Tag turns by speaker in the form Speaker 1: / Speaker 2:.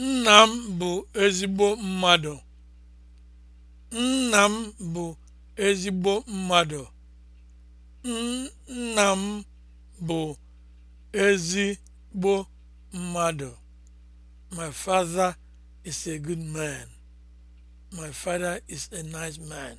Speaker 1: Nna m bụ ezigbo mmadụ. Nna m bụ ezigbo mmadụ. Nna m bụ ezigbo mmadụ. My father is a good man. My father is a nice man.